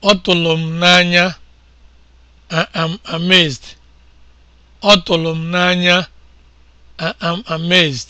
Ọ tụrụ m n'anya, am amazed. am amazed.